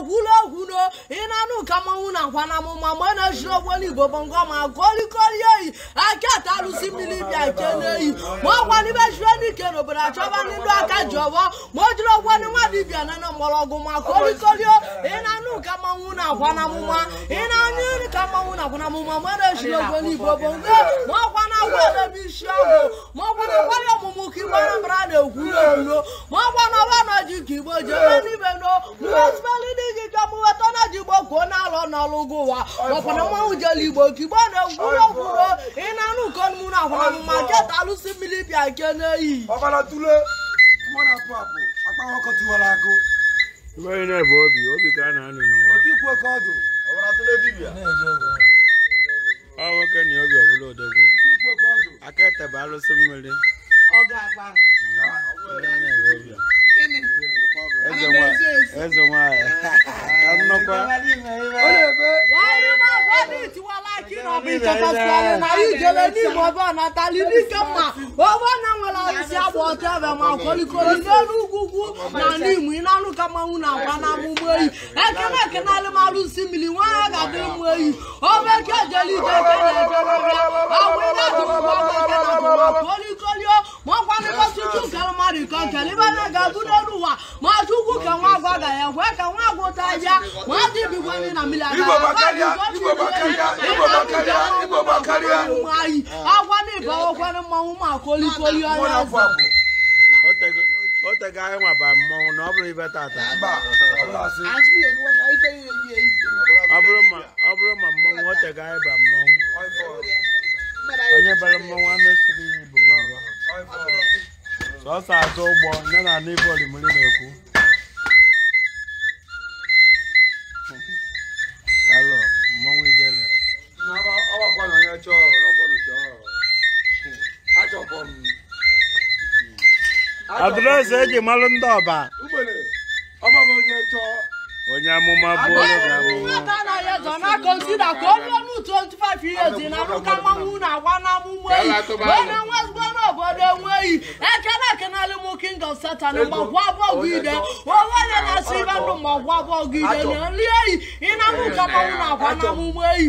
egwula egwu no ị na-anụ ka mmanwụ na nkwa na mụma mgbe na-ejiri ogwelu igbo bụ ngọ ma kolikoli oyi aka ata arụsị mmiri bịa nke n'eyi ma ọ gwa n'ibe jiri n'ike n'obodo aka ji ọbọ ma o jiri ogwelu nwa dibịa na na ma kolikoli ị na-anụ ka mmanwụ na nkwa na mụma ị na-anụ ka mmanwụ na na mụma mgbe na-ejiri ogwelu ọgwụ emebe isi ahụ ma ọ gwara ọmụmụ ka igbo anambra na-ekwu n'olu ma ọ gwara na ji ka igbo ji ebe n'ibe no mụwesipelidi gị ka mụ weta na ji igbo kwuo n'alọ n'ọlụ gị ụwa makwara mmanwụ jele igbo ka igbo na ike n'okwuro ị na-anụ ụkọ mụ na akwara mma keta alụsi mmiri bịa nke bụ obi obi ka a na-anụ n'ụwa ọ nwoke na obi akẹ́tẹ̀bà ló sọ mímọ́lé. ọgá àgbà. eze nwa eze nwa ka nnọkwa. wàhálà bọ́ ní ìtiwọ́ láìkí nà ọ̀bí ìjọba sọ̀rọ̀ nà yìí jẹ́lẹ̀ ní ìmọ̀ bọ́ọ̀ nà tálí ní kẹ́mà owó náà wọlé ọ̀sẹ̀ àbọ̀ ọ̀tẹ̀ bẹ̀ mà kọ́líkọ́lí lẹ́nu na n'Imo ị na-alụ ka mmanwụ na-agba n'ama ụgbọ eyi ekene ekenalụ m alụsi mmiri nwa ya ga-adị mmụ eyi omeke eke na-ejerọbịa agwụ ihe dụmụkpọkolikolio makwanịkọtụtụ kara mmadụ ka nkele ibe na ga-abụ n'elu ma chukwu ka nwa agwa ga ya kwee ka nwa agwa ụta ya ma dị bigwanye na mmiri agagha agwa na ịbawakwanụ mmanwụ ma kolikolio ya ịghọtaghị anyị nwa ba mmọnwụ na ọ bụrụ ibe tata ọ bụrụ ma mmọnwụ ghọtaghị anyị ba mmọnwụ onye bara mmọnwụ anụ siri iyi bụ sọsọ atụ ụgbọ nye na anụ ibe olimiri na-ekwu adreesị eji malụ ndị ọba onye amụma bụ consider ka ọ onye ọnụ 25 years na-arụka mmanwụ na-agwa n'amụma eyi onye nwe ezigbo n'obodo enweghị ekele ekenalị m king of satan mgbagwa abụọ gị ide onye na-asị ibe ndụ mgbagwa abụọ gị ide na nri eyi ị na-arụka mmanwụ na-agwa n'amụma eyi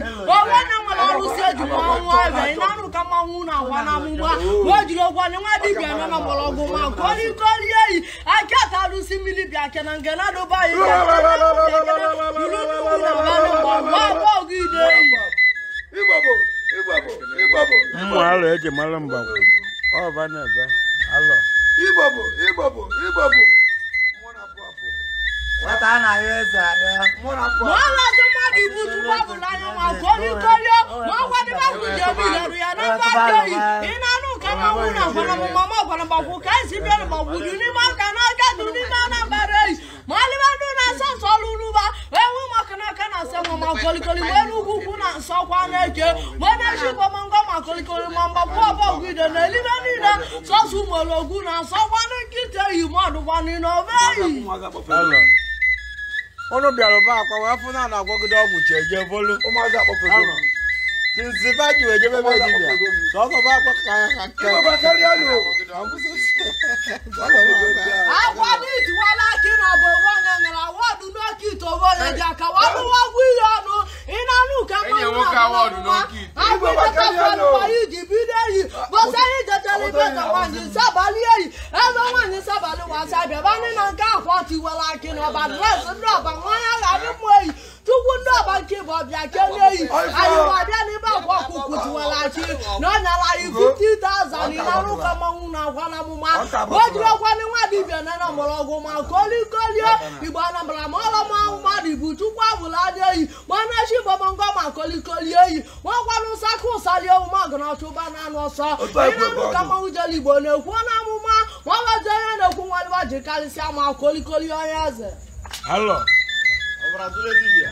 arụsị eji mmanwụ ebe na-arụ ka mmanwụ unu agwa na amụgba o jiri ogwa nwa dibịa nọ na mgbọrọgwụ ma nke onye ike orie eyi aka ata arụsị mmiri bịa ke na nke na-adọba anyị ụmụ alụ eji mara mgbagwo ọba na-ebe alọ nwata anaghị eze ibu túbọ̀bù láyọ̀ wọn kóríkóríó wọn wá ní báwo jẹ́ omi ìlọrin yẹn náà bá dé yìí iná nù kama wúna gbọdọ̀mọ mọ́mọ́ gbọdọ̀mọ kù kẹ́sì bẹ́ẹ̀ mọ̀ wùdú ní mọ́ kaná kẹ́tù ní mọ́ náà bá dé yìí mọ́lẹ́bẹ̀ dùn náà sọ̀sọ̀ lulu bá ewu mọ́ kaná kaná sẹ́ mọ́ mọ́ kóríkórí wọ́n ní kúkú náà sọ náà ké wọ́n ní ṣì mọ́ ngọ́ mọ́ mọ́ mọ́ unu bịara ba akwa wee fụ na ana agwọgide ọgwụ chi eje bolu tinsi baji wee jebe be dibịa sọsọ ba akwa ka ha agwado itiwala aki na bụ onwe onye nyere awọdụ n'oke ite onwe onye ji aka walụwa ọgwụ ihe ọnụ ịnanụ ka mmanụ agwụdetafanụwa iji bido eyi bọsa ihe jechere ibe ka nwaanyị nsabalị eyi ebe nwaanyị nsabalị wasa bịaba e ndị na nke afọ tiwala aki na ọba dres e ndị ọba 50,000 ịlarụkọmọnwụ na-agwa n'amụma o jiri ọkwanị nwa dibịa na na mgbọrọgwụ ma kolikolie igbo anambara ma ọla ọlọmanwụ mmadụ bụ chukwu abụla dị ma manachi bọbọngọ ma kolikolie ma nwakwanụ sakụ ụsali ọmụma ọgụnachụba na anụ ọsọ ịlarụkọmọnwụ jere igbo na-ekwu amụma ma ọ onye na-ekwu nwadịwa jikarịsịa ma kolikolie onye eze Alô? Vamos lá, dura de dia.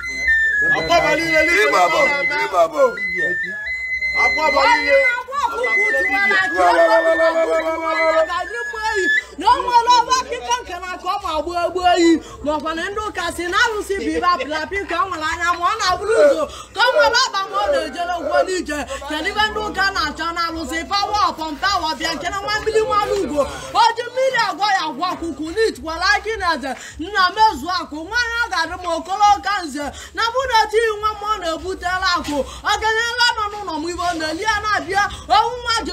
akọ́balílẹ̀ lé bàbọ̀ lé bàbọ̀ akọ́balílẹ̀. N'ọmọ lọ́wọ́ kíkọ́ nkànnà kọ́ ma gbọ́ egbo yi n'ọ̀fọ̀nà ndụ kasị na-arụsị bụ ibe apịlapị ka ọ nwere anya ma ọ na-abụrụ ụzọ ka ọ nwere ọgba ma ọ na-ejere ụgwọ n'ije kedu ibe ndị ụka na-achọ na-arụsị pawa ọpọm pawa bịa nke na nwa mmiri nwa n'ugbo o ji mmiri agwa ya agwa akwụkwụ n'itwara gị na eze nna mezu akụ nwaanyị ọ ga-adị m okoloka nze na bụna etighị nwa m ọ na-ebutela akụ ọganyela nọ n'ụlọ m ibe ọ na-eli ya na-abịa owu nwa ji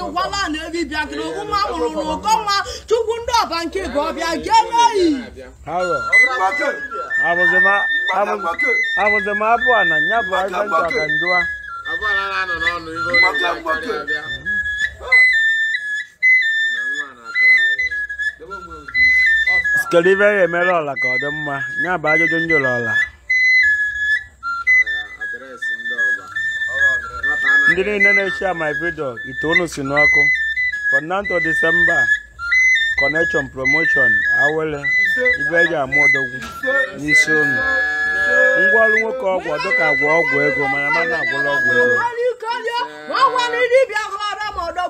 na ebi bịakịrị owu nwa mụrụ n'ụkọ nwa chukwu ndị ọba nke bụ ọbịa gee n'oyi abụzi m na nya bụ aja ncha ka kedu ibe emere ọla ka ọ dị mma ya bụ ajụjụ ndị ọla ndị niile na-echi my video itoolu si n'ọkụ fọnanto december connection promotion awele ibe eji ama odogwu n'isi unu ngwaọrụ nwoke ọgwụ dịka agwọ ọgwụ ego mana mana agwụla ọgwụ ego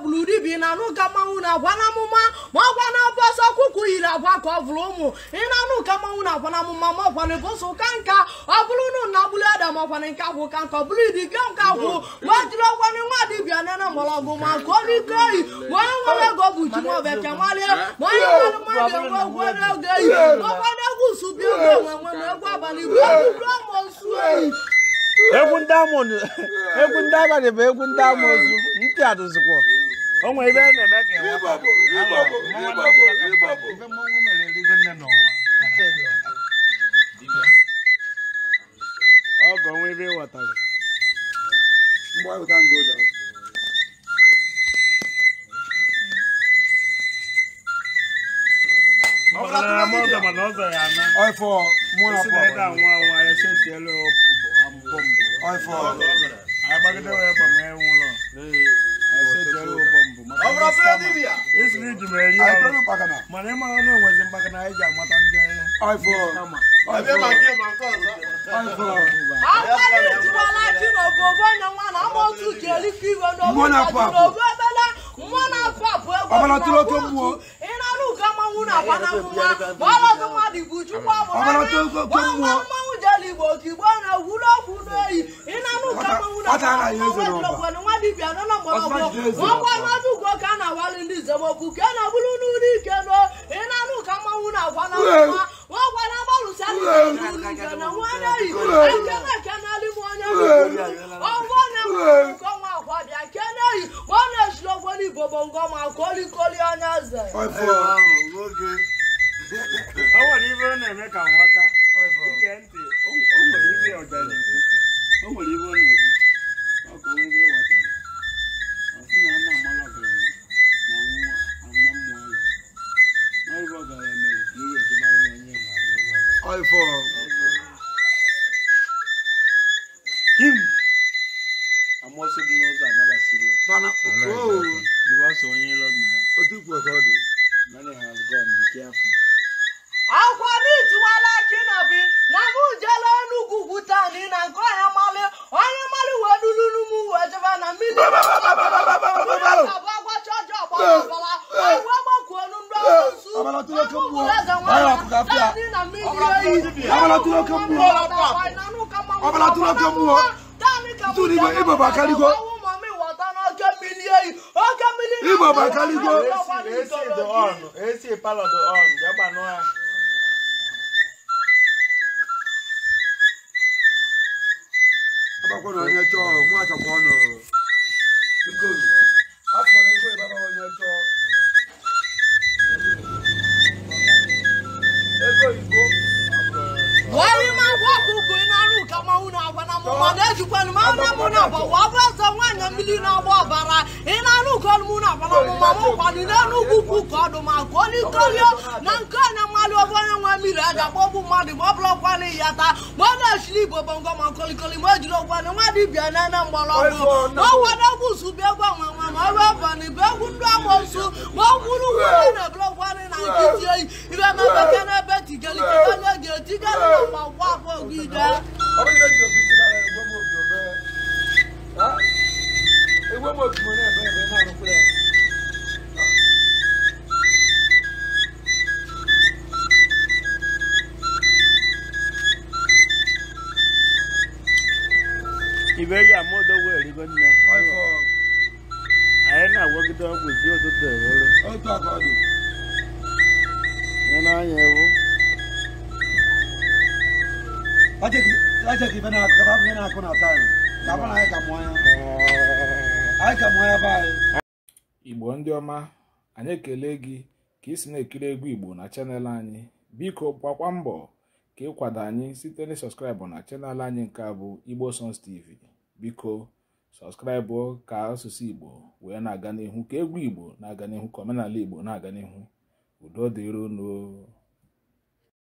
bụrụ uribi na-anụ ka mmanwụ na-agwa na amụma ma ọgwa na bọsọ ọkụkọ yiri agwa ka ọ bụrụ ụmụ ị na-anụ mmanwụ na-agwa na amụma ma ọkwana bọsọ ụka nka ọ bụrụ nụ na nke agwụ ka nka ọ bụrụ idiga nke agwụ jiri nwa ma ọ rike oyi ma onye nwere ego bụ ji ma ọbịa ma onye nwere mmadụ enwe egwu egwu abalị bụ egwu dọmọ oyi egwu ndị egwu ndị abalị onwe ebe a na-eme ka ebe mmọnwụ mere nne n'ụwa ọgọ onwe ebe ịghọtara ọfọ ọ iji mere ya arụ mana ịmara na enwezi mgbaka na ị ji amata ndị ọbara tụrụ oke okwuke na-abụrụ n'ụlọ ike nọ ị na-anụ ka mmanwụ na-agwa na mma ọgwa na agbalụsa ike na nwanne yi ekene kenelị m onye ọgwọ na-enwe nkọnwa agwa bịa kene yi ọ na-ejiri ọgwọ n'igbo bụ ngọma kolikoli onye eze also knows I never see you. Bana, oh, because when you love me, what do you work out? Many have gone, be careful. Akwani tiwala kinabi na mu jelo nugu gutani na ko ya male onye male wedulu numu wejeba na mini abagwa chojo abala ewu agbaku onu ndo su abala tulo kambu ayo akuka fia abala tulo kambu abala tulo kambu n'ime ịbụ bakaligo ịbụ bakaligo agbakwa na onye chọọ nwa chọkwa ọnụ afọ na ego ịbaba onye chọọ ego igbo wari ma gwọ ọkụkụ mahuna abana mu maneju ọmọ yìí lójú òbí síra rẹ ìwé mọ òbí ọbẹ ìwé mọ òbí mọ náà bẹ́ẹ̀ bẹ́ẹ̀ náà budget ibe na akụ ibe na akụ na taịm ka bụ na anyị ka mụọ igbo ndị ọma anyị ekele gị ka ị na-ekiri egwu igbo na chanel anyị biko gbakwa mbọ ka ịkwado anyị site na sọskraịbụ na chanel anyị nke a bụ igbo sons tv biko sọskraịbụ ka asụsụ igbo wee na-aga n'ihu ka egwu igbo na-aga n'ihu ka omenala igbo na-aga n'ihu udo dịron